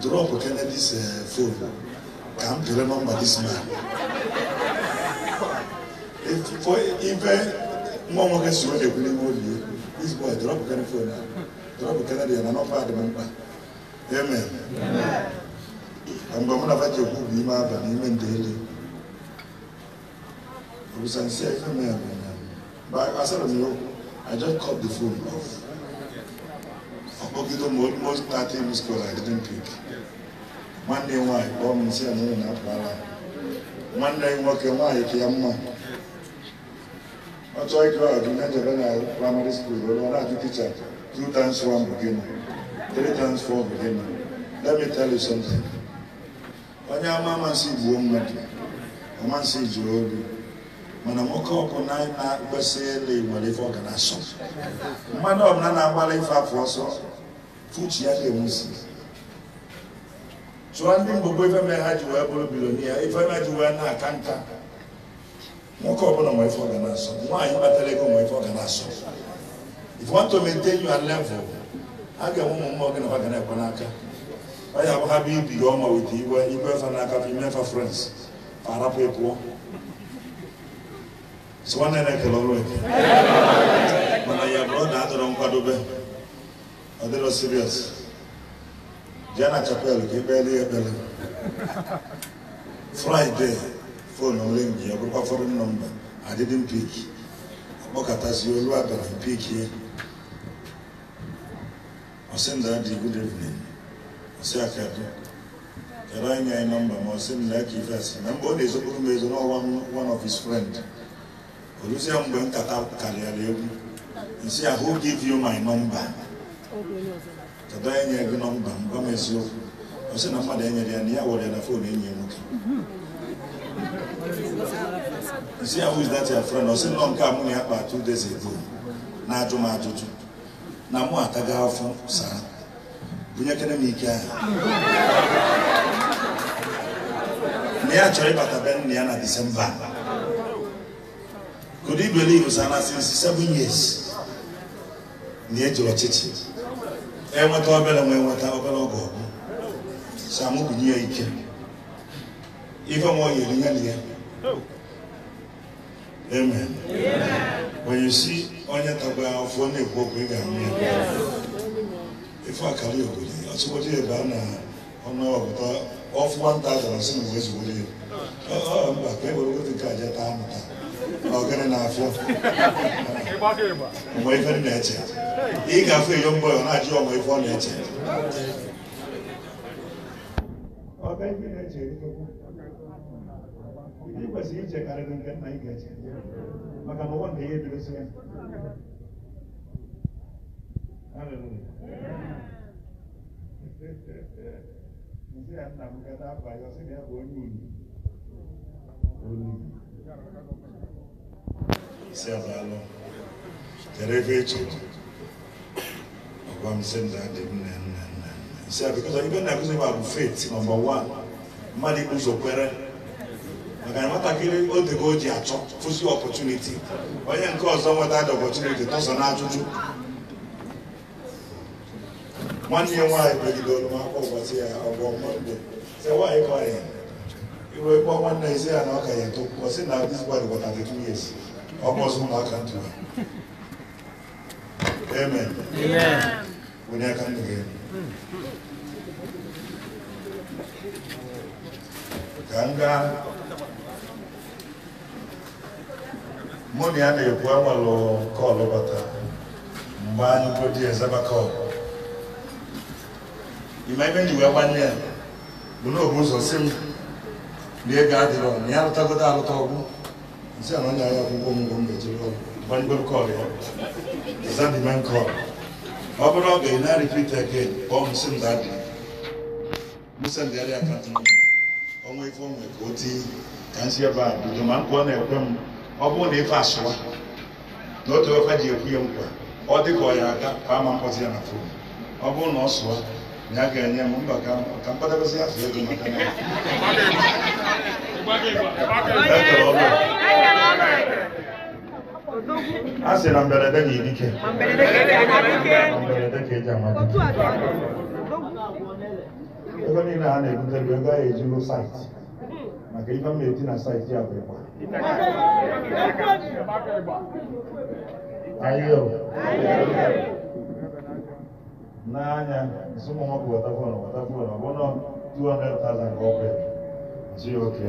drop Kennedy's uh, eh, phone ka m pere nọmba this man ife nwa nwoke si onye ekwu n'ime obi ekwu this boy drop Kennedy phone na drop Kennedy and na nọmba adị m mkpa amen mgbe mụ na faji ekwu bụ ime aba na ime ndeli obusansi ife mere asara m ya okwu I just cut the phone off ogigo most platinum schools I didn't pick nwanne nwaanyị kpọọ m nsị m na nwanne nwoke nwaanyị ka ya mma ọ chọọ ịgụ na ejebe na praịmarị skuul ọ na-ajụ ticha two times one bụ gịnị three times four bụ gịnị let me tell you something onye ama amasị gbuo mmadụ amasị obi, mana nwoke ọbụla na-akpesị nwere ife ọ ga na-asọ mmadụ ọbụla na agbalị ife afọ ọsọ uche ya ga-enwusi chụọ ndị mgbogbo ife mere ha ji wee bụrụ bilonia ife mere ji wee na-aka nka nwoke ọbụla nwe ife ọ na-asọ nwaanyị kpatara ego nwe ife ọ na-asọ if you want to maintain your level a ga-enwe ụmụ mmụọ gị na ha ga na-ekwe n'aka ọ ya bụ ha bụ ibi gị ọma wete iwe iwe fa n'aka fa imefa frens fa arapụ ịpụọ so nwanne na-ekele ọrụ eke mana ya bụrụ na adọrọ nkwadobe Are they not serious? Jana Chapel, Kibeli Ebele. Friday, phone on link, your proper phone number. I didn't pick. Abokatasi Oluwabere pick here. I send Daddy good evening. I say Akadu. Kera anya a number, I send Lucky first. Remember, there's a woman who is not one, one of his friends. Olusia Mbwen Kata Kariya Lewu. He say, who give you my number? kedụ enyi nyere gị nọmba m m eziokwu ọ sị na mmadụ enyere ya na ya were ya na fon enyi ya nwoke isi ya wuz dat ya fren ọ sị nọ nke a mụ na ya kpa two days ago na-ajụ m ajụjụ na mụ ataga afọ saa bunyekere m ike ahụ na ya chọrọ ịbata be nna ya na disemba kudu ibelivu sana since seven years na eji ọchịchị enweta obere nwa enweta obere oge ọgụ samu ya ike ife nwa oyi erinye na ya amen onye si onye tagba afọ na-ekwu okwu ị ga-amụ ya ife akara obodo ya ọtụbọdụ ebe a na ọnụọpụta ọfụ nwata azara sị na uwe zugoro ya ọ mba ka e were ogote nke aja taa amụta na na afọ ọmọ ife ni na-eche ị ga-afụ mbọ ya ọ na-ajụ ọmọ ife ọ na-eche ndị kwesịrị ichekarịrị nke nna ị ga-eche maka na ụwa na ihe ebidosi ya nsị ya nna m gada abalị ọsị na ya bụ onye unu olu isi abalị Jere ebe eche ọgwa m sị m daadị m nne abụ mmadụ ikwu kwere maka na nwatakịrị oge o ji achọ fụzi ọpọtuniti onye nke ọzọ nweta dị ọpọtuniti tọsọ na nwanne ya nwaanyị megide olumaka ụbọchị ya ọgbọ mọnde sị nwaanyị kọ ya iwe kpọ nwanne ya na ọka ya eto ọ sị na this boy ọzọ ụmụaka ntụ Amen. Amen. When I come again. Ka gaa na ya na-ekwu agbalụ kọlụ bata mgbe anyị bodi eze kọlụ ọkụ. ebe ji wee gbanye ya bụ na obu ụzọ si m na adịrọ na ya lụtagodo arụta ọgwụ isi ala onye anya akwụkwọ ọmụgwọ m ga-ejere ọgwụ kọl ya zadman kọl ọ bụrụ oge ị na-repeat again kpọọ m si mdadi msendịgharị akant nọmba ọnwa ife onwe ka o tinye ka m si ebe a bido ma nkwa ọ na-ekwe m ọ bụrụ na ife asụwa na otu ofe ji ekwu ya nkwa ọ dị ka ọ ya aga paa ma mkpọzi ya na fon ọ bụrụ na ọ sụọ ya ga-enye m mba ka mkpadabazi afọ ego maka na a sị na mberede ga edike mberede ka eji amadike ego niile a na-ebute bụ ego a ejigo saịtị maka ife m na-eti na saịtị ya bụ ịgba ayo n'anya nsụmụnwọkụ wọtafon wọtafon ọbụna 200,000 ọkụ ya ji oke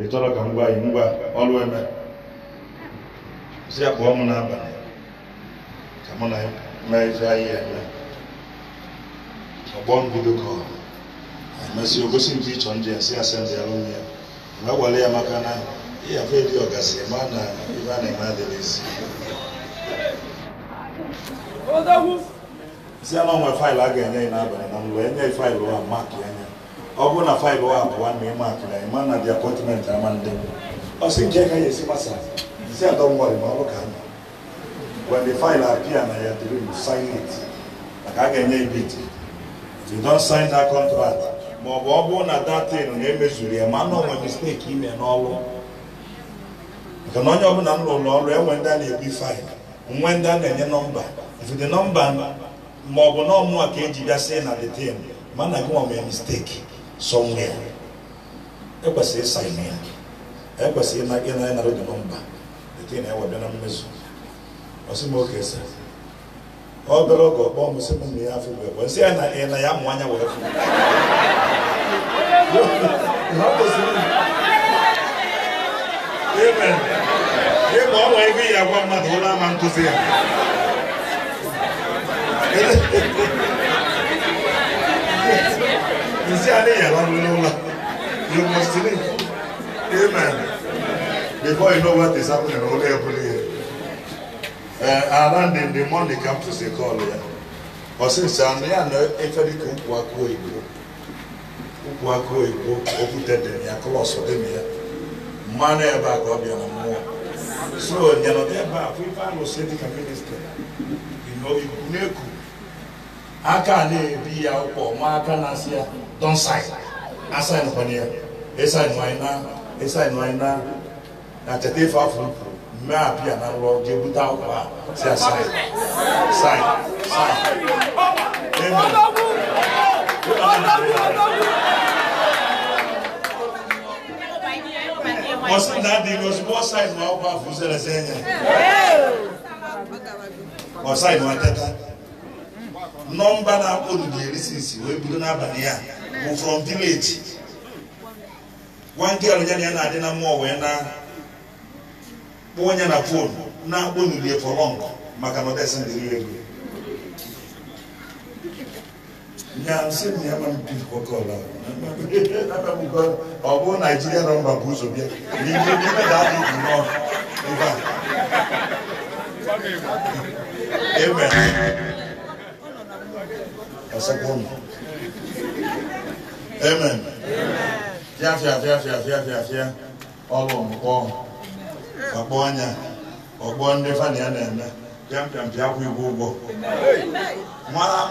ị chọrọ ka m gwa ngwa ọrụ eme si ya kpọọ m n'abalị ka mụ na mmeezi anyị eme ọgbọ mbido ka emesịa ogosi nke ịchọ ndị ya si asị ndị ya lụnye ya mgbe agwara ya maka na ịyafe dị ọgasị ma na ibe a na-eme adịghị ezi si ya na onwe faịlụ a ga-enye ya n'abalị na mgbe enye faịlụ a maka anya ọ bụrụ na faịlụ a abụọ na ịma akụra ịma na dị apọtmentị ama ndị ọ sị nke ka ya esi masa Say, I don't worry about look at me. When the file appear and I have to you sign it. Like I can name it. you don't sign that contract, ma ọ bụ ọ bụ na datin na-emezuru ya ma nọ nwere misteki ime n'ọrụ maka na onye ọbụla m ọrụ enwe ndị a na-ebu faịlụ nwe ndị a na-enye nọmba ifụdị nọmba ma ọ bụ e na eji na detin e mana e na ekwesịrị ya nke na-ewebịa na mmezu oke sị ọ bịara oge ọkpọ m sị ya afọ bụ egbe nsị ya na ya mụ anya wee fụ ịgba ọnwa ego ya agwa mmadụ ụlọ ama nkụzi ya nsị Before you know what is happening, only every year. And then the morning comes to say call here. But since I'm here, you every kuku akuo igbo, kuku akuo igbo, okute you are close dem ya. Mmanụ ebe a ka ọ bịa na mmụọ. So nyanọdụ ebe a, ife a na-ose dịka minista, igbo na-eku. Aka na-ebi ya ụkwụ, ma aka na-asị ya, don sign, asign kwanye, esign wanyị na, esign wanyị na na kyɛte fa furufuru mmaa apia na lɔɔre deɛ buta akɔ a sɛ asan san san amen. Wɔsi na di wɔsi bɔ sayi ma ɔba fun sɛ lɛsɛ nyɛ. Wɔsayi ma tɛta. Nɔmba na akɔ dudu yɛ sisi wo ebido n'abalị a wò from village. One girl nyɛ ni ɛna adi na mu ɔwɛ na. kpụọ na fon na-akpọ for long maka na ego ya na ọ bụ naijiria na mba bụ ụzọ bịa n'ime adị ebe a ọkpọ anya ọgbọ ndị fani ya na-eme pịampịam pịa kwụ igwe ụgwọ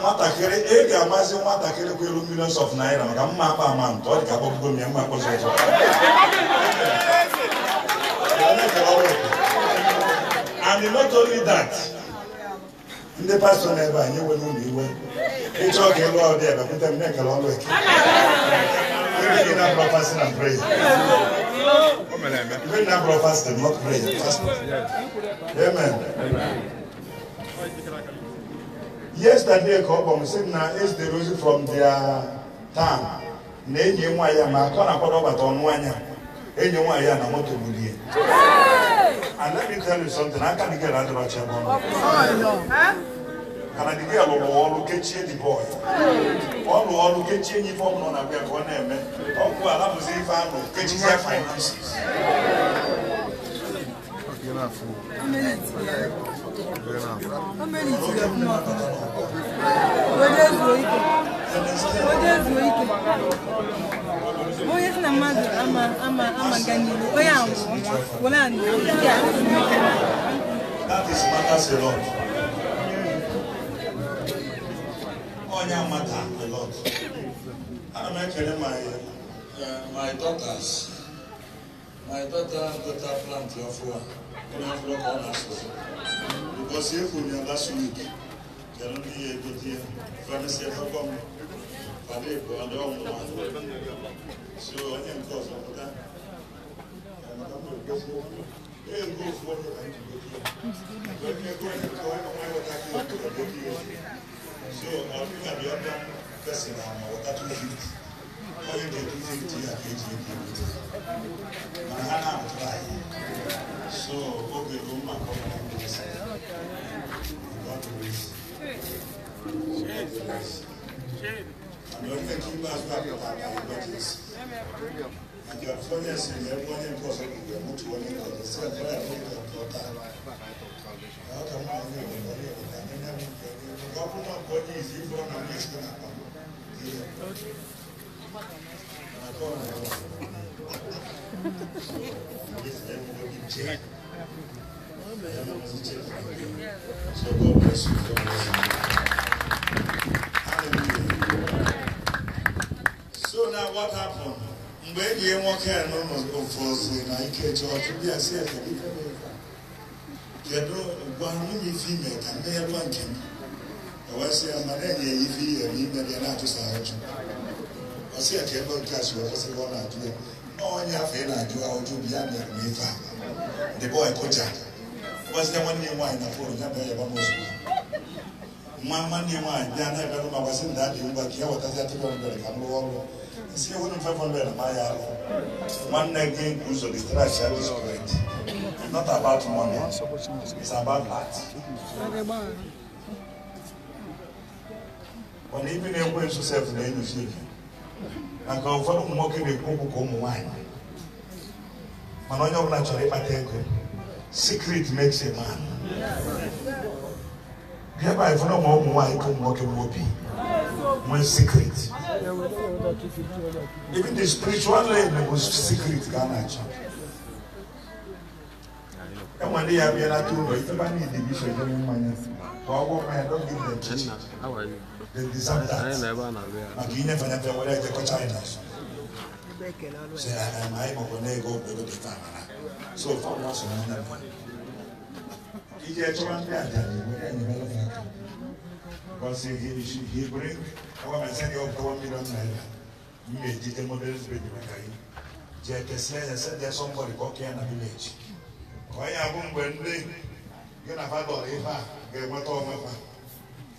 nwatakịrị ị e ga-amazi nwatakịrị kwụ elu millions of naira maka mma akpa ama ntọ ọ dị ka akpọbugo m ya mma akpọzi ụtọ and not only that ndị pastọ na-ebe anyị nwere ụlọ iwe ịchọ ka ịlụ ọdị ebe kwute m na-ekele ọlụ eke ndị gị na-abụrụ pastọ na prayer Even that brother fasted, not pray fasted. Amen. Yesterday, a couple said, now is the reason from their town. na enyi nwaanyị ma akọ na akpọrọ ọbata ọnụ anya enyi nwaanyị na moto bulie and let me tell you something I dị get na adịrọcha bụ ọnụ kanadigi alụrụ ọrụ kechie di bọị ọ ọrụ kechie nye ife ọbụla na-abịa ka ọ na-eme ọgwụ alabụzi ife anụ kechizie finances onye si na mmadụ amaga n'ihu onye anwụrụ were anụ ya That is matters a Onya matter a lot. Ana m ekele my uh, my daughters. My daughter daughter plant ọfụwa onye ọfụwa ka ọ na-asụsụ. Because efu ya last week kedu ndị ya egote ya fadesi efekọ m fada ịbụ ndị ọmụma so onye nke ọzọ pụta ego ofu onye ka anyị ji gote ya. Ego onye onye ka onye ka ya gote ya so our ọdún tàbí ọdún fẹsẹ̀ ra àwọn ọ̀tá tó fi wọ́n yóò dé tó fi ti àkejì ìdí ìdí màhánà àtúrà yìí so oge ló mà kọ́ ọ́n ní ẹsẹ̀ God bless God bless àmì ọ̀fẹ́ kí n bá a gbà pé bàbá yìí God bless àjọ fọ́nyẹ̀sì yẹn wọ́n ní nǹkan sọ̀rọ̀ ìgbẹ̀mú tí wọ́n ní kọ̀ọ̀tà sí ẹ̀fọ́ ẹ̀fọ́ ìgbẹ̀mú tó ta the kan máa ń ní ìgbẹ̀mú So now what happened? Mgbe eji nwoke a n'ụlọ ofuofu na ike chọọchị bịa si efe kedu gwa nwunye ife ime ka mmegharịwa nke m ɛwɔsɛ amanɛnyɛ yifi yɛbi bɛdeɛ na ato saa na adoɛ na ɔnyɛ afei na adoɛ a ɔdwo bia ne ɛrɛ mefa de bɔ ɛkɔgya ɔsɛ dɛ ayina a na ɛbɛdom a ma mana ibi na-ekwe nso sef na-enyocha ike maka ụfọdụ ụmụ nwoke na-ekwu okwu ka ụmụ nwaanyị mana onye ọbụla chọrọ ịkpata ego secret makes a man bịa ba ịfọdụ ma ụmụ nwaanyị ka ụmụ nwoke bụ obi nwee secret even the spiritual leg bụ secret ka a na Someone they have been at two, if you need division, you don't mind. Well, what man, don't give them cheating. How are you? They deserve that. I never know. Like you never never whether they go China. Say, I'm I'm going to go to the farm. So far, what's the Because he, he, he bring, ọwọ́ mi sẹ́ni ọ̀pọ̀ one million naira. Mi ò jíjẹ́ mọ́bílẹ́sì bèbí màkà yìí. Jẹ́ kẹsí ẹ̀yẹ sẹ́ni ẹ̀ sọ́mbọ̀dì kọ́kẹ́ ẹ̀ nà village. onye abụ mgbe ndị gị na ha dọrọ ihe a ga-enweta ọmụma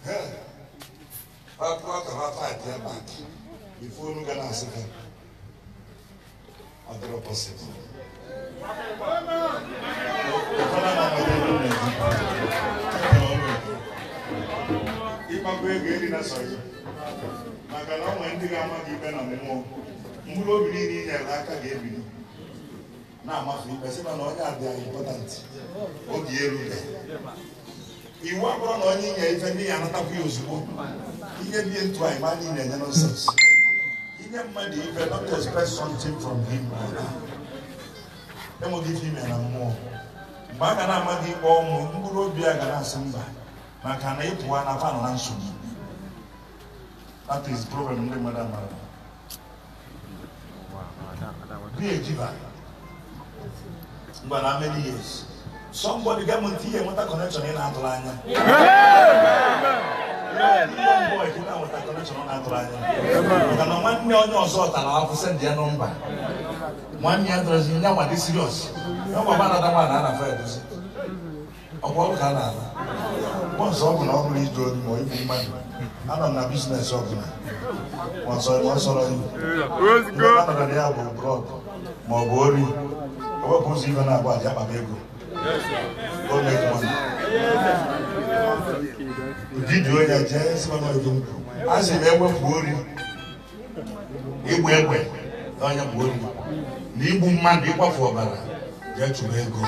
ha papụọ pat ya a ife ga na-asị ha ọ dịrọ ịkpakọ ego eri na sọrọ maka na ọ nwere ndị ga-ama gị ikpe na mmụọ mkpụrụ obi niile i aka ga-ebili na-amafe ikpe sị na onye abịa important oge erube iwu abụrụ na onye inye ife ndị ya anatakwa ya ozugbo ihe bie ntụ anyị ma niile enye nonsens inye mmadụ ife not expect something from him enweghị ife ime na mmụọ mgbe a ga na amaghị gị ikpe ọnwụ mkpụrụ obi a ga na-asị mba maka na ịpụwa na fanụ na nsogbu that is problem ndị mmadụ amara be a But how many years somebody gọọmenti ihe nweta connection ị na-atụrụ anya maka na nwanne onye ọzọ tara afọ sendị ya nọmba nwanne ya dọrọzi nye nwa dị siriọs ya nwa gbara ada nwaanyị ana afọ ya dozi ọkwa ọrụ ka a na-ala bọnsọ ọ bụla ọ bụla idu oyi ma igbu mmadụ anọ na bizinesi ọ bụla ọsọrọ iwu ihe a nọrọ ya bụ brọd ma ọ bụ wepụ ụzọ ibe na-agba aja akpaba ego ụdịdị onye jee simanọdụ nkwụ a sị na ewepụ ori igbu egbe na onye bụ ori na igbu mmadụ ịkwafu ọbara jee chụrụ ego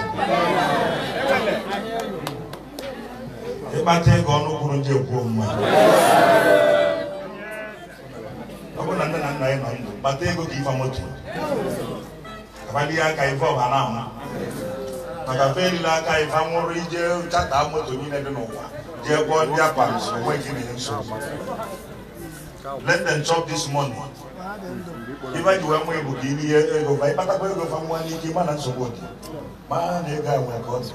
ịkpata ego ọnụ kwuru nje kwuo mma ọ bụrụ na nne na nna anyị nọ ndụ kpata ego ka ife moto akpali aka ife ọha na ama maka fe erila aka ife anwụrụ ije chata moto niile dị n'ụwa jee gwọọ ndị akpa onwe gị na nsogbu let them chop this money ife ji wee nwa egwu ka iri ego fa ịkpatakwa ego fa nwa n'ike ma na nsogbu dị ma na ego a nwere ka ọ dị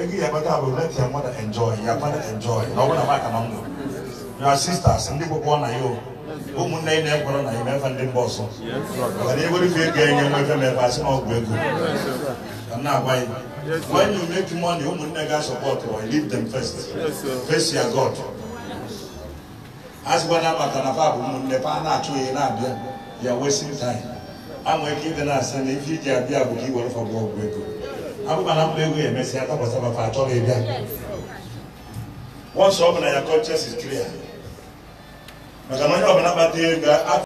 ego ya kpata bụ let ya nwada enjoy ya nwada enjoy na ọ bụla maka na m nwere your sisters ndị gwụkwọ na ya o ụmụnne anyị na-ekwere na imefe ndị mba ọzọ mana ewere ife ego enye mmefe mefe asị na ọgwụ ego ka m na-agwa ya when you make money ụmụnne ga-asọpọt I leave them first face your God azịgbana maka na fa bụ ụmụnne fa na-achụ ya na-abịa ya wasting time a nwere ike ịdị na-asị na ife iji abịa bụ ka i were fọgbu ọgwụ ego abụba na mba ego ya emesịa takwasaba fa achọghị ịbịa once ọ bụ na ya conscience is clear I don't Parce que